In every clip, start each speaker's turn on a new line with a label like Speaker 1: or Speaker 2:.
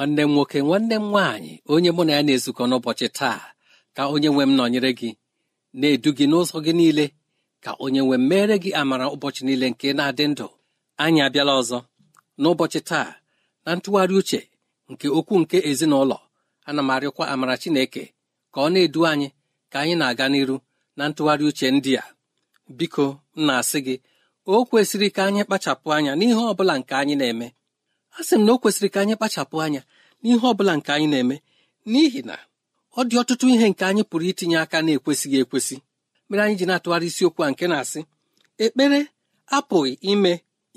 Speaker 1: nwanne m nwoke nwanne m nwaanyị onye mụ na ya na-ezukọ n'ụbọchị taa ka onye nwe m nọnyere gị na-edu gị n'ụzọ gị niile ka onye nwe m gị amara ụbọchị niile nke na-adị ndụ anyị abịala ọzọ n'ụbọchị taa na ntụgharị uche nke okwu nke ezinụlọ ana m amara Chineke ka ọ na-edu anyị ka anyị na-aga n'iru na ntụgharị uche ndị a biko m na-asị gị o kwesịrị ka anyị kpachapụ anya n'ihe ọ bụla nke anyị na-eme a sị m na o kwesịrị ka anyị kpachapụ anya n'ihe ọ bụla nke anyị na-eme n'ihi na ọ dị ọtụtụ ihe nke anyị pụrụ itinye aka na-ekwesịghị ekwesị mere anyị ji na-atụgharị isiokwu a nke na-asị ekpere apụghị ime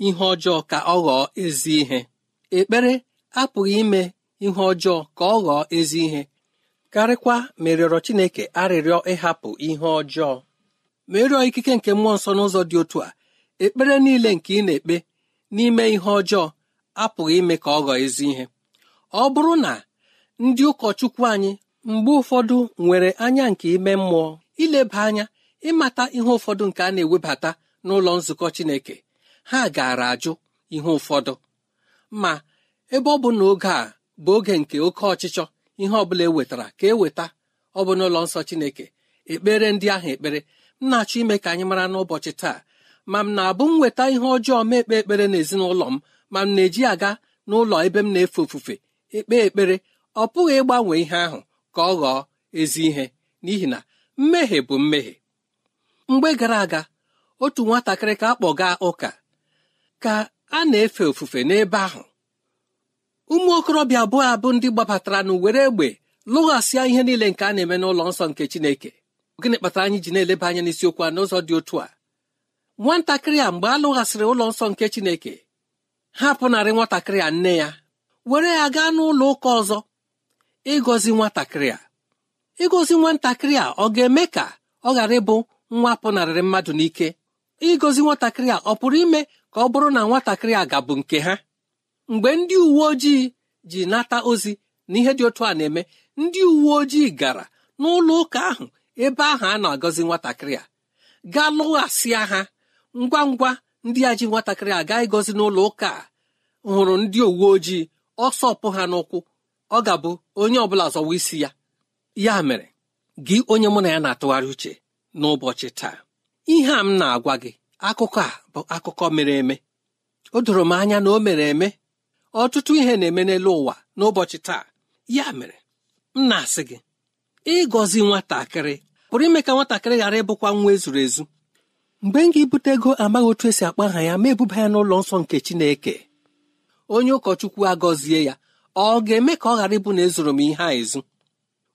Speaker 1: ihe ọjọọ ka ọ ghọọ ezi ihe ekpere apụghị ime ihe ọjọọ ka ọ ghọọ ezi ihe karịkwa merịọrọ Chineke arịrịọ ịhapụ ihe ọjọọ merịọ ikike nke mmụọ nsọ n'ụzọ dị otu a ekpere niile nke ị na-ekpe n'ime ihe ọjọọ apụghị ime ka ọ ghọọ ezi ihe ọ bụrụ na ndị ụkọchukwu anyị mgbe ụfọdụ nwere anya nke ime mmụọ ileba anya ịmata ihe ụfọdụ nke a na-ewebata n'ụlọ nzukọ Chineke ha gaara ajụ ihe ụfọdụ ma ebe ọ bụ na oge a bụ oge nke oke ọchịchọ ihe ọ bụla ewetara ka eweta ọ bụ n'ụlọ nsọ Chineke ekpere ndị ahụ ekpere m na-achọ ime ka anyị mara n'ụbọchị taa ma m na-abụ m weta ihe ọjọọ ma ekpe ekpere n'ezinụlọ m ma m na-eji aga n'ụlọ ebe m na-efe ofufe ekpe ekpere ọ pụghị ịgbanwe ihe ahụ ka ọ ghọọ ezi ihe n'ihi na mmehie bụ mmehie mgbe gara aga otu nwatakịrị ka a kpọga ụka ka a na-efe ofufe n'ebe ahụ ụmụ okorobịa abụọ abụ ndị gbabatara na were egbe lụghasịa ihe niile nke a na-eme n'ụlọ nsọ nke Chineke gịnị kpatara anyị ji na-eleba anya n'isiokwu a n'ụzọ dị otu a nwatakịrị a mgbe a lụghasịrị ụlọ nsọ nke Chineke hapụnarị nwatakịrị a nne ya were ya gaa n'ụlọ ụka ọzọ ịgọzi nwatakịrị a ịgọzi nwatakịrị a ọ ga-eme ka ọ ghara ịbụ nwa pụnarịrị mmadụ n'ike ịgọzi nwatakịrị a ọ pụrụ ime ka ọ bụrụ na nwatakịrị a gabụ nke ha mgbe ndị uwe ojii ji nata ozi na ihe dị otu a na-eme ndị uwe ojii gara n'ụlọ ụka ahụ ebe ahụ a na-agọzi nwatakịrị a gaa lụghasịa ha ngwa ngwa ndị a ji nwatakịrị aga ịgọzi n'ụlọ ụka hụrụ ndị uwe ojii ọsọ ọpụ ha n'ụkwụ ọ ga-abụ onye ọbụla zọwa isi ya ya mere gị onye mụ na ya na-atụgharị uche n'ụbọchị taa ihe a m na-agwa gị akụkọ a bụ akụkọ mere eme o doro m anya na o mere eme ọtụtụ ihe na-eme n'elu ụwa n'ụbọchị taa ya mere m na-asị gị ịgọzi nwatakịrị pụrụ ime ka nwatakịrị ghara ịbụkwa nwa ezuru ezu mgbe m ga-ebute ego amaghị otu esi akpa aha ya ma ebuba ya n'ụlọ nsọ nke chineke onye ụkọchukwu agọzie ya ọ ga-eme ka ọ ghara ịbụ na ezoro m ihe a ezu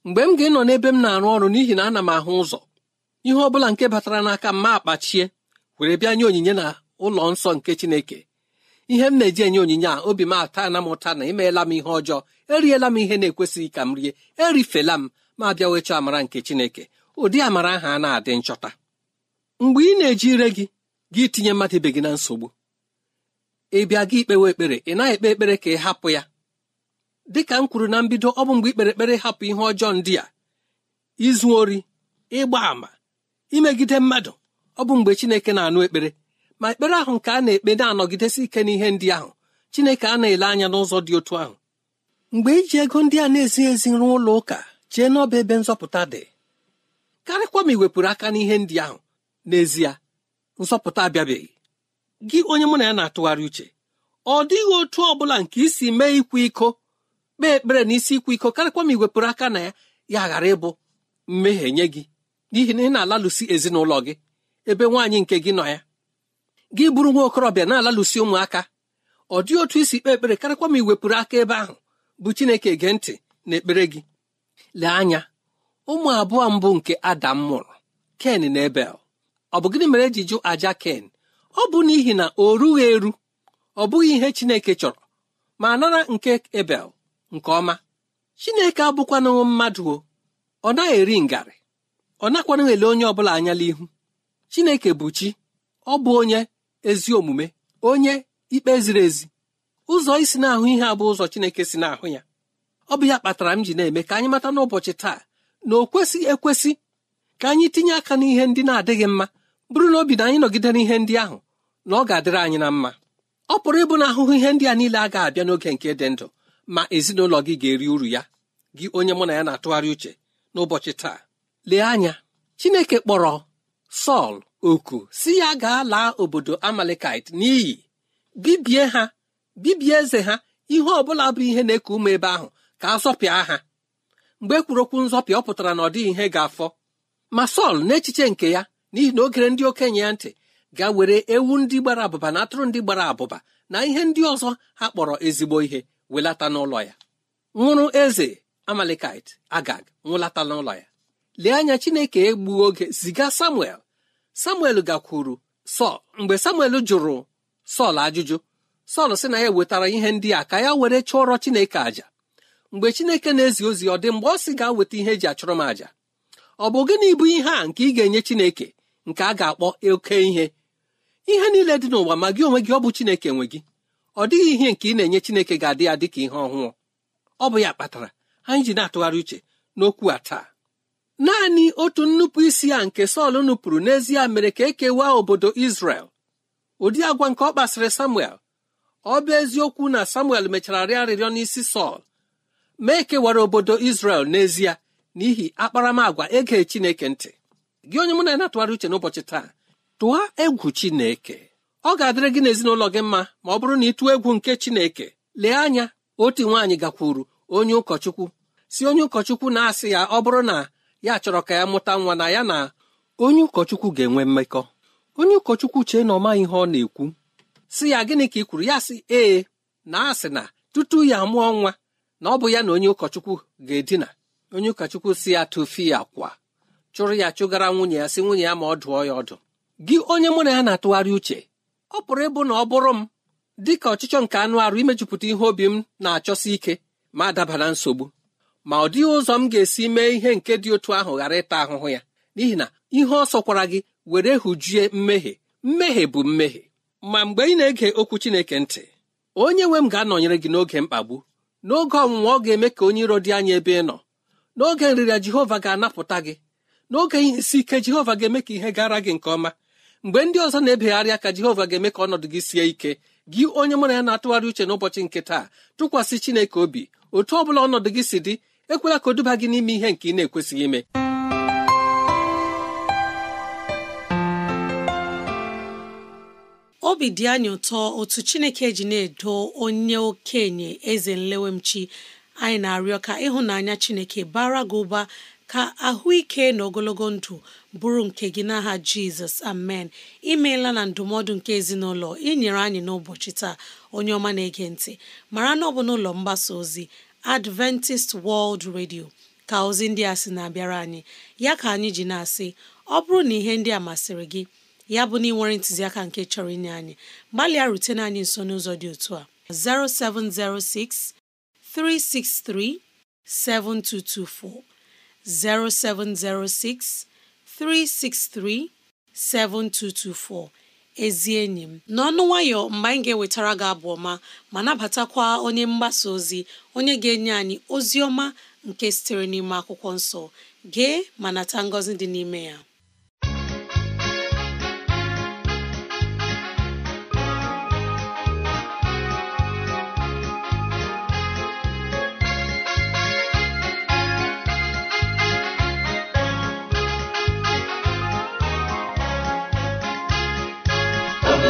Speaker 1: mgbe m ga-enọ n'ebe m na-arụ ọrụ n'ihi na ana m ahụ ụzọ ihe ọ bụla nke batara n'aka mma ma akpachie were bịa nye onyinye na ụlọ nsọ nke chineke ihe m na-eji enye onyinye a obi m ata na m ụta na imeela m ihe ọjọọ eriela m ihe na-ekwesịghị ka m rie erifela m ma bịa wechọọ amara nke chineke ụdị amara ahụ a na-adị nchọta mgbe ị na-eji ire gị gị tinye mmadụ ibe gị na nsogbu ị bịa gị ikpewe ekpere ị naghị ekpe ekpere ka ị hapụ ya dịka m kwuru na mbido ọ bụ mgbe ikpere ekpere hapụ ihe ọjọọ ndị a izu ori ịgba àmà imegide mmadụ ọ bụ mgbe Chineke na-anụ ekpere ma ekpere ahụ nke a na-ekpe na-anọgidesi ike n'ihe ndị ahụ Chineke a na-ele anya n'ụzọ dị otu ahụ mgbe iji ego ndị a na-ezighị ezi rụọ ụlọ ụka chee n'ọba ebe nzọpụta dị karịkwa ma ị wepụrụ aka n'ihe ndị ahụ n'ezie nsọpụta abịabeghị gị onye mụ na ya na-atụgharị uche ọ dịghị otu ọ bụla nke isi mee ikwa iko kpee ekpere na isi ikwa iko karịkwa ma iwepụrụ aka na ya ya ghara ịbụ mmehie nye gị n'ihi na ị na-alalụsi ezinụlọ gị ebe nwaanyị nke gị nọ ya gị bụrụ nwa okorobịa na-alalụsi ụmụaka ọ dịghị otu isi kpee ekpere karịkwa ma iwepụrụ aka ebe ahụ bụ Chineke gee ntị na ekpere gị lee anya ụmụ abụọ mbụ nke Adam mụrụ Ken na Ebel ọ bụ gịnị mere eji jụ aja ken ọ bụ n'ihi na o rughị eru ọ bụghị ihe chineke chọrọ ma nara nke ebel nke ọma chineke abụkwanụghị mmadụ o ọ naghị eri ngarị ọ nakwanụ ele onye ọbụla anya ihu chineke bụ chi ọ bụ onye ezi omume onye ikpe ziri ezi ụzọ isi na-ahụ ihe a bụ ụzọ chineke si na-ahụ ya ọ bụ ya kpatara m ji na-eme ka anyị mata n'ụbọchị taa na o kwesịghị ekwesị ka anyị tinye aka n'ihe ndị na-adịghị mma bụrụ na obi na anyị nọgidere ihe ndị ahụ na ọ ga-adịrị anyị na mma ọ pụrụ ịbụ na ahụhụ ihe ndị a niile a ga-abịa n'oge nke dị ndụ ma ezinụlọ gị ga-eri uru ya gị onye mụ na ya na-atụgharị uche n'ụbọchị taa lee anya Chineke kpọrọ Sọl oku si ya gaa laa obodo Amalekite n'iyi bibie ha bibie eze ha ihe ọ bụla bụ ihe na-eku ume ebe ahụ ka a zọpịa ha mgbe ekwuru okwu nzọpịa ọ pụtara na ọ dịghị ihe ga-afọ ma Sọl n'echiche nke ya n'ihi na ogere ndị okenye ya ntị ga were ewu ndị gbara abụba na atụrụ ndị gbara abụba na ihe ndị ọzọ ha kpọrọ ezigbo ihe welata n'ụlọ ya nwụrụ eze amalekit agag nwụlata n'ụlọ ya lee anya chineke egbuo oge ziga samuel samuel gakwuru sọl mgbe samuel jụrụ sọl ajụjụ sọl sị na ya wetara ihe ndị a ka ya were chụọrọ chineke àjà mgbe chineke na-ezi ozi ọ dị mgbe ọ sị ga weta ihe eji achụrụ m àjà ọ bụ gịnị bụ ihe a nke ị ga-enye chineke nke a ga-akpọ oke ihe ihe niile dị n'ụwa ma gị onwe gị ọ bụ chineke nwe gị ọ dịghị ihe nke ị na-enye chineke ga-adị ya dịka ihe ọhụụ ọ bụ ya kpatara anyị ji na-atụgharị uche n'okwu a taa naanị otu nnupụ isi a nke Sọl nupụrụ n'ezie mere ka ekewa obodo isrel ụdị agwa nke ọ kpasịrị Samuel ọ bụ eziokwu na Samuel mechara rịọ arịrịọ n'isi Sọl ma ekewara obodo isrel n'ezie n'ihi akparamagwa ege Chineke ntị gị onye mụ na na-atụgharị uche n'ụbọchị taa tụọ egwu Chineke ọ ga-adịrị gị n'ezinụlọ gị mma ma ọ bụrụ na ị tụọ egwu nke Chineke lee anya otu nwaanyị gakwuru onye ụkọchukwu si onye ụkọchukwu na-asị ya ọ bụrụ na ya chọrọ ka ya mụta nwa na ya na onye ụkọchukwu ga-enwe mmekọ onye ụkọchukwu chee na ọ maghị ihe ọ na-ekwu si ya gịnị ka ị kwuru ya sị ee na asị na tutu ya mụọ nwa na ọ bụ ya na onye ụkọchukwu ga-edina onye ụkọchukwu si ya tụfee ya kwa chụrụ ya chụgara nwunye ya sị nwunye ya ma ọ dụọ ya ọdụ gị onye mụ na ya na-atụgharị uche ọ pụrụ ịbụ na ọ bụrụ m dị ka ọchịchọ nke anụ arụ imejupụta ihe obi m na-achọsi ike ma daba na nsogbu ma ọ dịghị ụzọ m ga-esi mee ihe nke dị otu ahụ ghara ịta ahụhụ ya n'ihi na ihe ọ sọkwara gị were hụjue mmehie mmehie bụ mmehie ma mgbe ị na-ege okwu Chineke ntị onye nwe m ga-anọnyere gị n'oge mkpagbu n'oge ọnwụnwa ọ ga-eme ka onye iro dị anya ebe ị nọ n'oge nrịrịa Jehova ga-anapụta gị n'oge ihe isi ike jehova ga-eme ka ihe gara gị nke ọma mgbe ndị ọzọ na ebegharịa aka jehova ga-eme ka ọnọdụ gị sie ike gị onye na ya na-atụgharị uche n'ụbọchị nke taa tụkwasị chineke obi otu ọ bụla ọnọdụ gị si dị ekwela ka o duba gị n'ime
Speaker 2: ihe nke ị na-ekwesịghị ime obi dị anyị ụtọ otu chineke ji na-edo onye okenye eze nlewemchi anyị na-arịọ ka ịhụnanya chineke bara gị ụba ka ahụike na ogologo ndụ bụrụ nke gị n'aha jizọs amen imeela na ndụmọdụ nke ezinụlọ inyere anyị n'ụbọchị taa onye ọma na-ege ntị mara na ọ bụ n'ụlọ mgbasa ozi adventist world radio ka ozi ndị a sị na-abịara anyị ya ka anyị ji na-asị ọ bụrụ na ihe ndị a masịrị gị ya bụ na ị nwere ntụziaka nke chọrọ inye anyị gbalịa rutene anyị nso n'ụzọ dị otu a 0706 363 7224 0706 363 7224 ezi enyi m n'ọnụ nwayọ mgbe anyị ga-ewetara gị abụ ọma ma nabatakwa onye mgbasa ozi onye ga-enye anyị ozi ọma nke sitere n'ime akwụkwọ nsọ gee ma nata ngọzi dị n'ime ya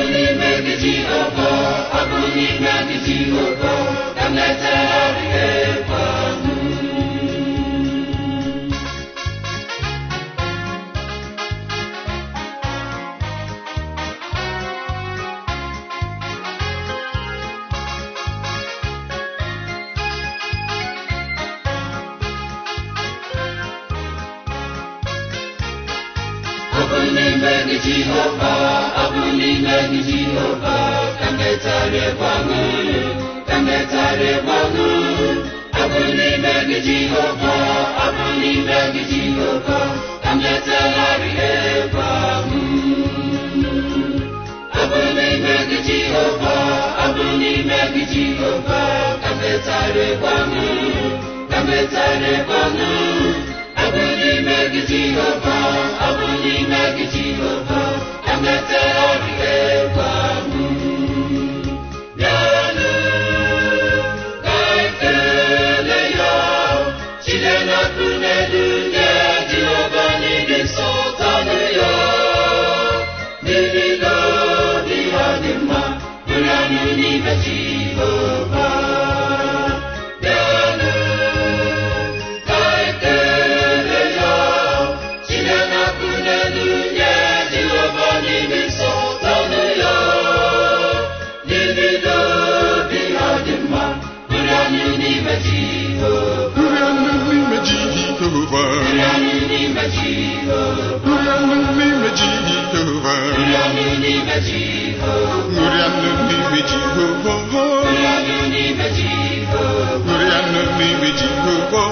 Speaker 3: ọkụ n'ime gị Jehova ọkụ n'ime gị Jehova ka m na gị Mlimeni Jehova, abụ mlimeni Jehova, ka mmetarịkwa unu, ka mmetarịkwa unu. Abụ mlimeni Jehova, abụ mlimeni Jehova, ka mmetarịkwa unu. Abụ mlimeni Jehova, abụ mlimeni Jehova, ka mmetarịkwa unu, ka mmetarịkwa unu. Jehovah, I will imagine Jehovah, and that's all we Jehovah.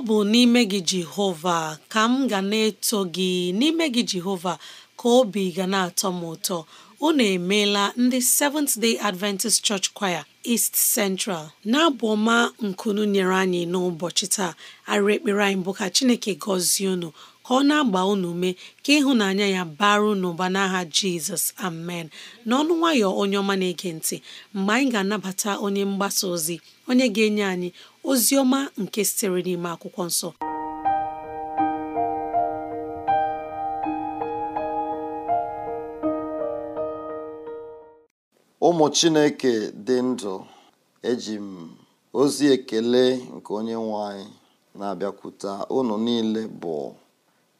Speaker 2: ọ bụ n'ime gị Jehova ka m ga na-eto gị n'ime gị Jehova ka obi ga na-atọ m ụtọ unu emeela ndị Seventh Day Adventist Church Choir East Central na-abụ ọma nkunu nyere anyị n'ụbọchị taa arịrị ekpere anyị bụ ka Chineke gọzie unu ka ọ na-agba unu ume ka ịhụnanya ya baru n'ụba n'aha Jizọs amen n'ọnụ nwayọ onye ọma na-ege ntị mgbe anyị ga-anabata onye mgbasa ozi onye ga-enye anyị ozi nke sitere n'ime akwụkwọ nsọ
Speaker 4: ụmụ chineke dị ndụ eji m ozi ekele nke onye nwanyị na-abịakwuta ụnụ niile bụ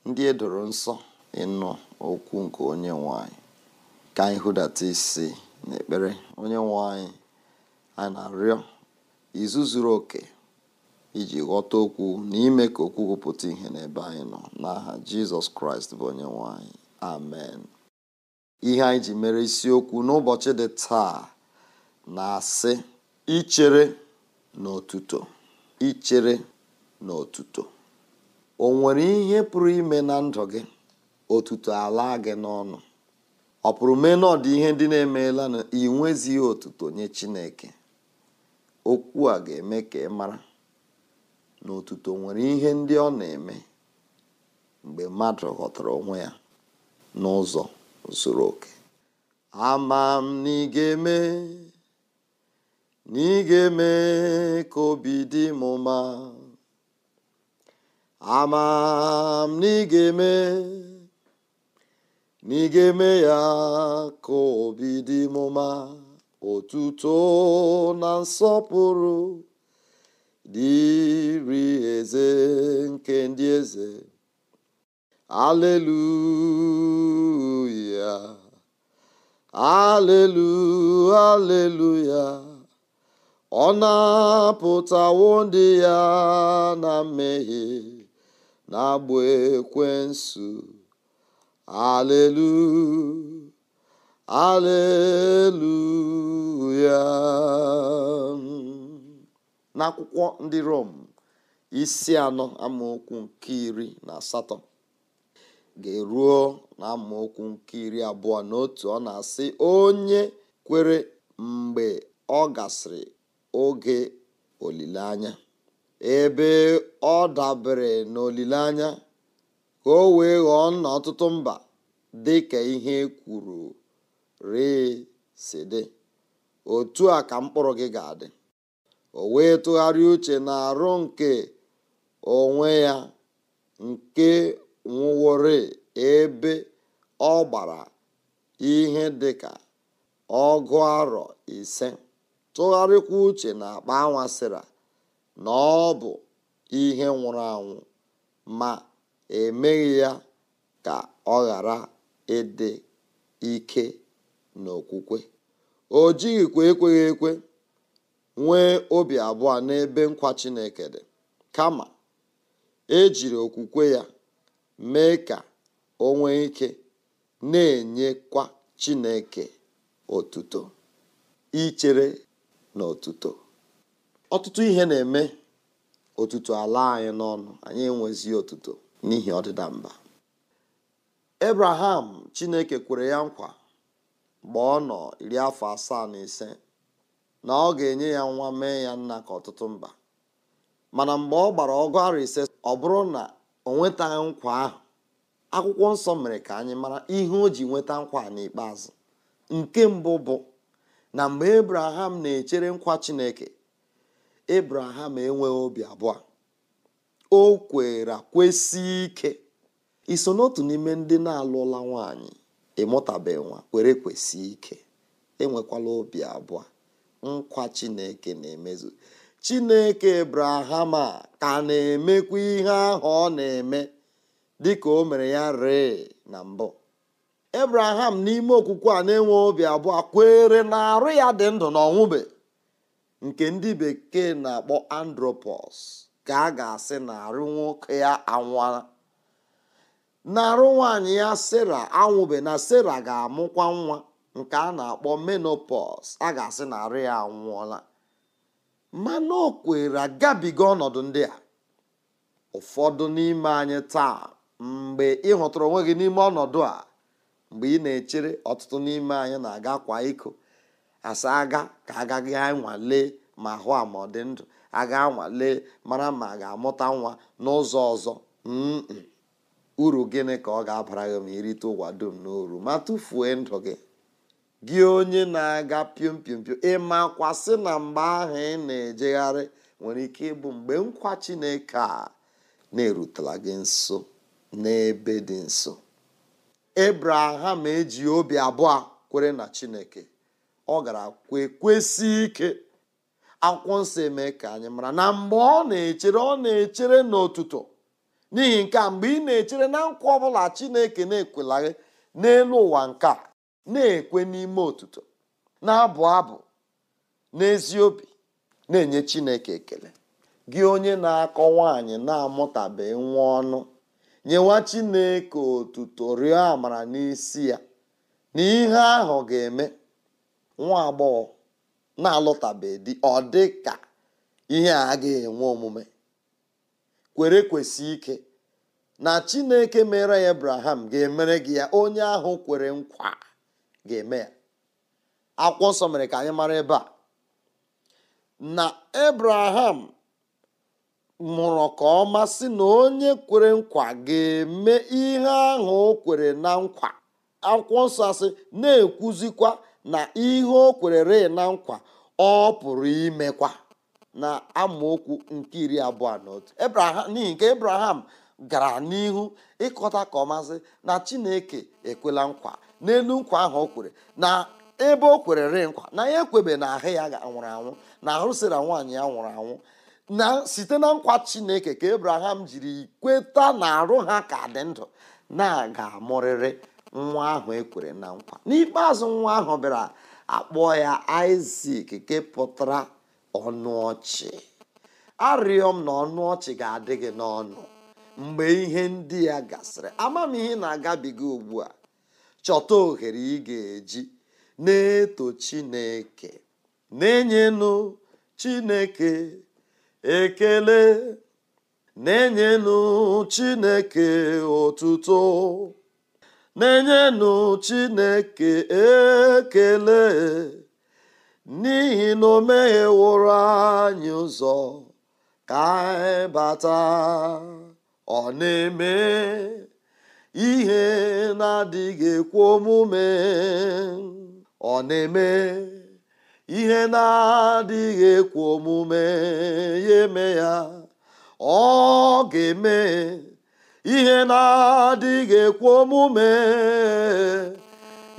Speaker 4: ndị e edoro nsọ ịnụ okwu nke onye nwanyị ka anyị hụdata isi n'ekpere onye nwanyị a na-arịọ izu zuru oke iji ghọta okwu na ime ka okwu pụta ihe n'ebe anyị nọ n'aha jizọs kraịst bụ onye nwanyị amen ihe anyị ji mere isiokwu n'ụbọchị dị taa na-asị ichere n'otuto ichere n'otuto o nwere ihe pụrụ ime na ndụ gị otuto ala gị n'ọnụ ọ pụrụ mee na ihe ndị na-emeela na inwezighị otuto nye chineke okwu a ga-eme ka ị mara na otuto nwere ihe ndị ọ na-eme mgbe mmadụ ghọtara onwe ya n'ụzọ zuru oke ama m na ị ga-eme na ị ga-eme ka obi dị m ama m na ị ga-eme na ị ga-eme ya ka obi dị m otuto na nsọpụrụ dịri eze nke ndị eze aleluya alelu aleluya ọ na-apụtawo ndị ya na mmehie na-agba ekwensu aleluya aleluya n'akwụkwọ ndị rom isi anọ amaokwu nke iri na asatọ ga-eruo na amaokwu nke iri abụọ na otu ọ na-asị onye kwere mgbe ọ gasịrị oge olileanya ebe ọ dabere n'olileanya ka o wee ghọọ nna ọtụtụ mba dị ka ihe kwuru rịị si otu a ka mkpụrụ gị ga-adị o wee tụgharị uche na arụ nke onwe ya nke nwụwore ebe ọ gbara ihe dị ka ọgụ arọ ise tụgharịkwa uche na akpa anwasịra na ọ bụ ihe nwụrụ anwụ ma emeghị ya ka ọ ghara ịdị ike n'okwukwe o jighịkwa ekweghị ekwe nwee obi abụọ n'ebe nkwa chineke dị kama ejiri okwukwe ya mee ka o ike na-enyekwa chineke otuto ichere na otuto ọtụtụ ihe na-eme otuto ala anyị n'ọnụ anyị enwezi otuto n'ihi ọdịda mba ebraham chineke kwere ya nkwa mgbe ọ nọ iri afọ asaa na ise na ọ ga-enye ya nwa mee ya nna ka ọtụtụ mba mana mgbe ọ gbara ọgụ ise ọ bụrụ na o nwetaghị nkwa ahụ akwụkwọ nsọ mere ka anyị mara ihe o ji nweta nkwa n'ikpeazụ nke mbụ bụ na mgbe Abraham na-echere nkwa Chineke Abraham enweghị obi abụọ o kwere kwesị ike iso n'otu n'ime ndị na-alụla nwanyị mụtabeghị nwa were kwesị ike enwekwala obi abụọ nkwa chineke na-emezu chineke abraham a ka na-emekwa ihe ahụ ọ na-eme dịka o mere ya ree na mbụ abraham n'ime okwukwe a na-enwe obi abụọ kwere na arụ ya dị ndụ na ọnwụbe nke ndị bekee na-akpọ andropos ka a ga-asị na arụ nwoke ya anwụla n'arụ nwanyị ya sera anwụbe na sera ga-amụkwa nwa nke a na-akpọ menopos a ga-asị na arụ ya anwụọla mana o kwere agabiga ọnọdụ ndị a ụfọdụ n'ime anyị taa mgbe ị onwe gị n'ime ọnọdụ a mgbe ị na-echere ọtụtụ n'ime anyị na-aga kwa iko asa aga ka agaghị anwale ma hụ ama ọ dị ndụ aga anwale mara ma a ga-amụta nwa n'ụzọ ọzọ uru gịnị ka ọ ga-abara gị ma irite ụwa dum n'oru ma tụfuo ndụ gị gị onye na-aga piom piom piom ịmakwasị na mgbe ahụ ị na-ejegharị nwere ike ịbụ mgbe nkwa Chineke a na-erutela gị nso n'ebe dị nso ebraham eji obi abụọ kwere na Chineke ọ gara kwe ike akwụkwọ nsọ eme ka anyị mara na mgbe ọ na-echere ọ na-echere n'ụtụtụ. n'ihi nke a mgbe ị na-echere na nkwa ọbụla chineke na-ekwelaghị n'elu ụwa nke a na-ekwe n'ime otuto na-abụ abụ n'ezi obi na-enye chineke ekele gị onye na-akọ nwaanyị na-amụtabeghị nwa ọnụ nyewa chineke otuto rịọ amara n'isi ya na ihe ahụ ga-eme nwa agbọghọ na-alụtabeghị di ọ dị ka ihe a ga-enwe omume kwere kwesị ike na chineke mere ya abraham ga-emere gị ya onye ahụ kwere nkwa ga-eme ya akwụkwọ nsọ mere ka anyị mara ebe a na abraham mụrụ ka ọma sị na onye kwere nkwa ga-eme ihe ahụ o kwere na nkwa akwụkwọ nsọ asị na-ekwuzikwa na ihe o kwere re na nkwa ọ pụrụ imekwa na amaokwu nke iri abụọ na otu n'ihi nke ebraham gara n'ihu ịkọta ka ọmazị na chineke ekwela nkwa n'elu nkwa ahụ o kwere na ebe o kwerere nkwa na ya ekwebe na ahụ ya nwụrụ anwụ na ahụ sịra nwaanyị ya nwụrụ anwụ na site na nkwa chineke ka ebraham jiri kweta na arụ ha ka dị ndụ na-aga amụrịrị nwa ahụ ekwere na nkwa n'ikpeazụ nwa ahụ bịara akpọọ ya isak nke pụtara ọnụ ọchị arịọ m na ọnụ ọchị ga-adị gị n'ọnụ mgbe ihe ndị ya gasịrị amamihe na-agabiga ugbu a chọta ohere ị ga-eji na-eto chineke na-enyenụ chineke ekele na-enyenụ chineke otuto na-enyenụ chineke ekele n'ihi na o megheworo anyị ụzọ ka anyị bata ọ na-eme ihe na-adịghị ekwu omume ọ na-eme ihe na-adịghị omume ya eme ya ọ ga-eme ihe na-adịghị ekwu omume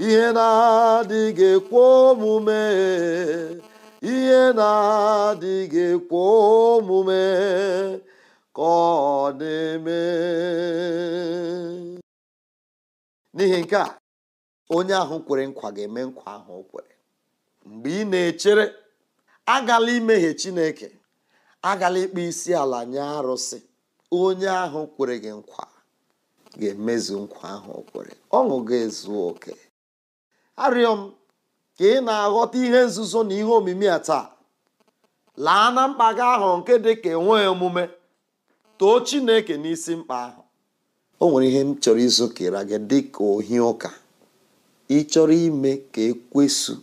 Speaker 4: ihe na-adịghị ekwe omume ihe na-adịghị ekwe omume ka ọ na-eme n'ihi nke a onye ahụ kwere nkwa ga-eme nkwa ahụ o kwere mgbe ị na-echere agala imehie Chineke agala ịkpa isi ala nye arụsị onye ahụ kwere gị nkwa ga-emezu nkwa ahụ o kwere ọṅụ ga-ezu oke arịọ m ka ị na-aghọta ihe nzuzo na ihe omimi a taa laa na mkpa gị ahụ nke dị ka enweghị omume too chineke n'isi mkpa ahụ o nwere ihe m chọrọ izokera gị dị ka ohi ụka ị chọrọ ime ka ekwesu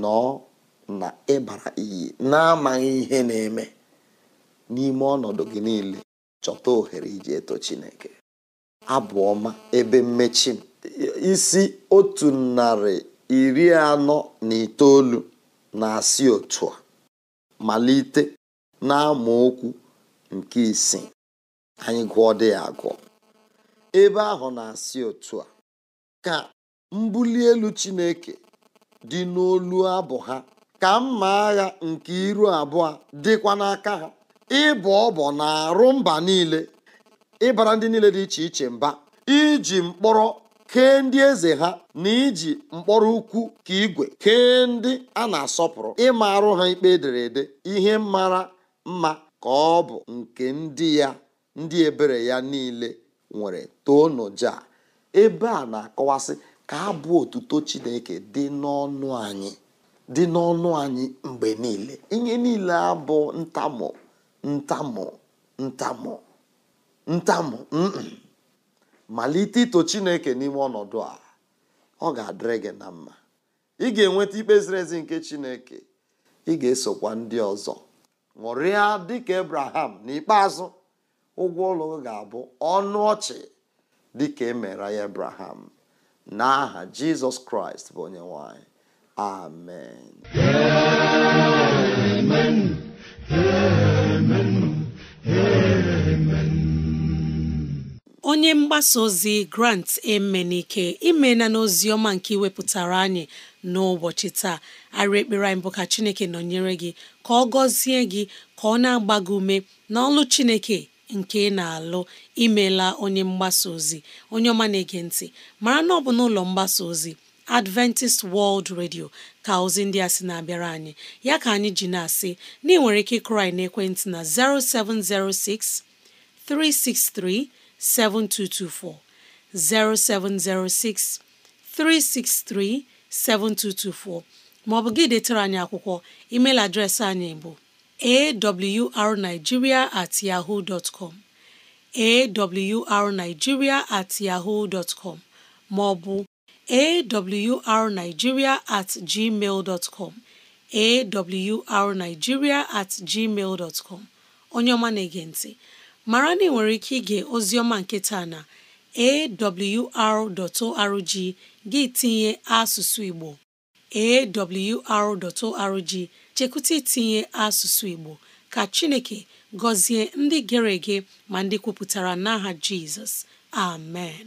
Speaker 4: nọọ na ịbara iyi n'amaghị ihe na-eme n'ime ọnọdụ gị niile chọta ohere iji eto chineke abụ ọma ebe mmechi isi otu narị iri anọ na itoolu na-asị otu a malite okwu nke isi anyị gụọ dị ya agụọ ebe ahụ na-asị otu a ka mbuli elu Chineke dị n'olu abụ ha ka mma agha nke iru abụọ dịkwa n'aka ha ịbụ ọbọ na-arụ mba niile ịbara ndị niile dị iche iche mba iji mkpọrọ kee ndị eze ha na iji mkpọrọ ukwu ka igwe kee ndị a na-asọpụrụ ịma arụ ha ikpe ederede ihe mara mma ka ọ bụ nke ndị ya ndị ebere ya niile nwere toonuja ebe a na-akọwasị ka abụ otuto chineke dị n'ọnụ anyị dị n'ọnụ anyị mgbe niile ihe niile abụ ntamụ ntamụ ntamụ ntamụ malite ito chineke n'ime ọnọdụ a ọ ga-adịrị gị na mma ị ga-enweta ikpe ziri ezi nke chineke ị ga-esokwa ndị ọzọ ṅụrịa dịka abraham n'ikpeazụ ụgwọ ụlọ ga-abụ ọnụ ọchị dịka emere ya abraham n'aha jizọs kraịst bụ onye nwanyị amen
Speaker 2: onye mgbasa ozi grant emenike imena n'ozi ọma nke iwepụtara anyị n'ụbọchị taa arị ekpere anyị bụ ka chineke nọnyere gị ka ọ gọzie gị ka ọ na-agba gị ume n'ọlụ chineke nke ị na-alụ imela onye mgbasa ozi onye ọma na-ege ntị mara na ọ bụ n'ụlọ mgbasa ozi Adventist World Radio ka ozi ndị a sị na-abịara anyị ya ka anyị ji na-asị na ị nwere ike ịkụrụ anyị ekwentị na 0706 363 7224 0706 363 7224 maọbụ gị detara anyị akwụkwọ email adreesị anyị bụ awrnigeria at yahoo dot com at yahoo dot maọbụ awrnigeria at gmail com at gmail dtcom onye ọma na-ege ntị mara na ị nwere ike ige oziọma nke na awr.org gị tinye asụsụ Igbo awr.org chekwụta itinye asụsụ Igbo ka Chineke gọzie ndị gere ege ma ndị kwupụtara n'aha Jizọs amen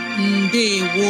Speaker 2: ndewo